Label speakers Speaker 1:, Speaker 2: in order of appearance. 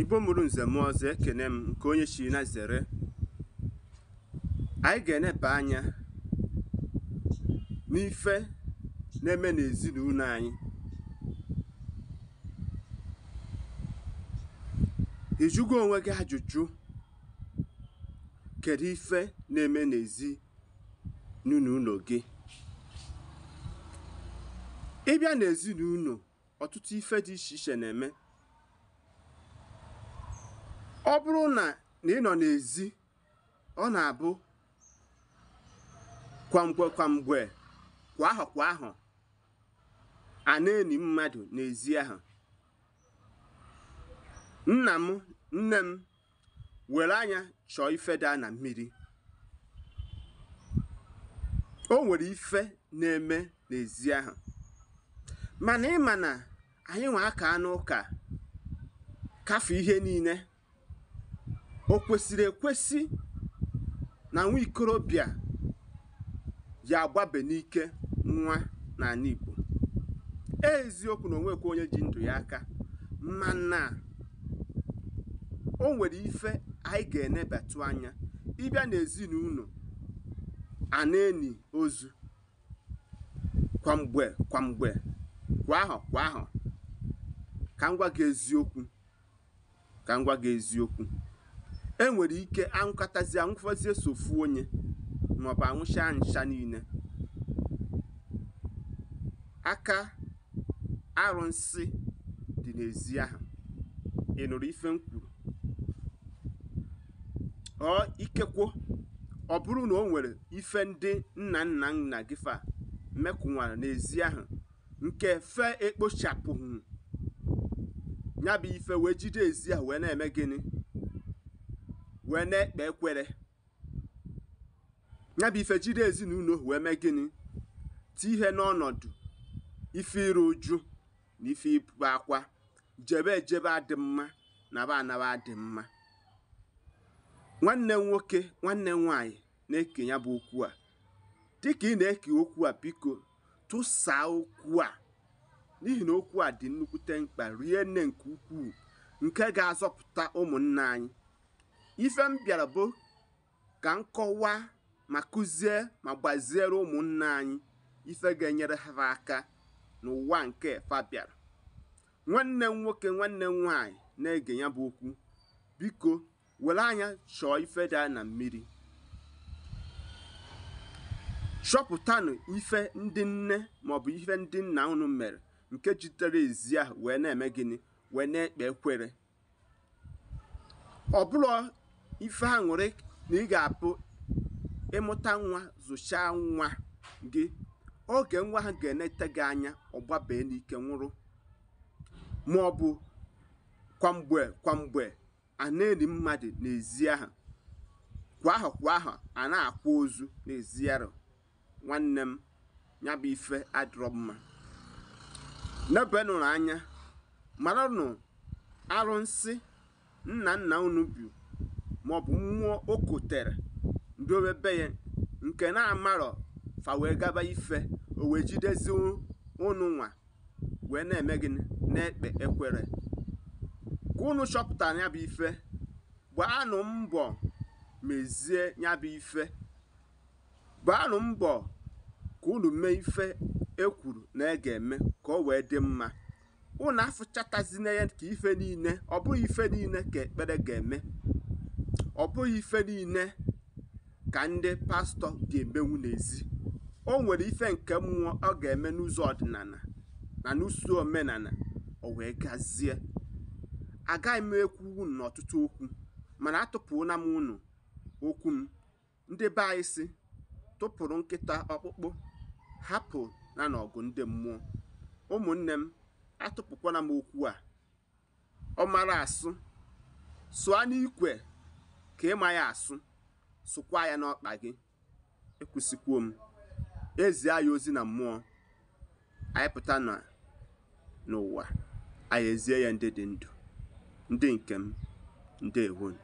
Speaker 1: igbo mụrụ nze mụọ ọzọ ekene m nke onye chiri na zere anyị ga-eneba anya n'ife na-eme n'ezinụlọ anyị jụgo onwe gị ajụjụ kedu ife na-eme n'ezi n'ụlọ gị ịbịa n'ezinụlọ ọtụtụ ife dị iche iche na-eme ọ bụrụ na ị nọ n'ezi ọ na-abụ kwamgbe kwamgbe kwa ahụ kwa ahụ a na-eni mmadụ n'ezi ahụ nna m nne m were anya chọọ ifeda na mmiri o nwere ife na-eme n'ezi ahụ mana ịma na anyị nwa aka n'ụka kafe ihe niile o kwesịrị ekwesị na nwa ikorobịa ji agbabe n'ike nwa n'ala Igbo e eziokwu na onwekwa onye ji ndụ ya aka mana o nwere ife anyị ga-enebatụ anya ịbịa n'ezinụlọ a eni ozu kwamgbe kwamgbe kwa ahọ kwa ahọ ka m gị eziokwu ka m gwa gị eziokwu enwere ike anwụkọtazi anwụfọzie sofu onye maọbụ anwụcha ncha niile aka arụsị dị n'ezi ahụ ị nụrụ ife m ọ ikekwo ọ bụrụ na o nwere ife ndị nna nna nna gị fa mekụnwara n'ezi ahụ nke fe ekpochapụghị ya bụ ife wee jide ezi ahụ wee na-eme gịnị wee na-ekpe ekwere ya bụ ife jiri ezinụlọ wee mee gịnị ti ihe n'ọnọdụ ife iru uju na ife ibu akwa jebe ejebe adị mma na ba anaba adị mma nwanne nwoke nwanne m nwaanyị na-eke ya bụ okwu a dịka ị na-eke okwu a biko tụsaa okwu a n'ihi na okwu a dị nnukwute mkpa rie nne nke ukwuu nke ga-azọpụta ụmụnna anyị ife m bịara bụ ka m kọwaa ma kụzie ma gbaziere ụmụnna anyị ife ga-enyere ha aka n'ụwa nke fa bịara nwanne m nwoke nwanne m nwaanyị na-ege ya bụ okwu biko were anya chọọ ife dị na mmiri chọpụtanụ ife ndị nne maọbụ ife ndị nna unu mere nke jitere ezi ahụ wee na-eme gịnị wee na-ekpe ekwere ọ ife ha nwere na ị ga-apụ ịmụta nwa zụchaa nwa gị oge nwa ha ga-enete gị anya ọgbabee n'ike nwụrụ ma ọ bụ kwamgbe kwamgbe a na mmadụ n'ezi aha kwa ahụ kwa ahụ a akwa ozu n'ezi nwanne m ya bụ ife adịrọ mma nụrụ anya maranụ arụsị nna nna unu maọbụ mmụọ o kotere ndowe be ya nke na-amarọ fa wee gaba ife o wee jidezi ụnụ nwa wee na-eme gịnị na-ekpe ekwere ka ụnụ chọpụtara ya bụ ife gbaanụ mbọ mezie ya bụ ife gbaanụ mbọ ka ụnụ mee ife ekwuru na ị e ga-eme ka ọ wee dị mma ụnụ na ya ka ife niile ọ bụghị ife niile ka ekpere ga-eme ọ bụghị ife niile ka ndị pastọ ga-emenwu n'ezi o nwere ife nke mmụọ ọ ga-eme n'ụzọ ọdịnala na n'usu omenala o wee gazie agaghị m ekwu unu n'ọtụtụ okwu mana atụpụla m unu okwu m ndị be anyị si tụpụrụ nkịta ọkpụkpụ hapụ na n'ọgụ ndị mmụọ ụmụnne m atụpụkwala m okwu a ọ mara asụ sụa n'ikwe ka ịma ya asụ sụkwa ya n'ọkpa gị ekwusịkwuo m ezie ya ozi na mmụọ anyị pụta n'ụwa anyị ezie ya ndị dị ndụ ndị nke m ndewonu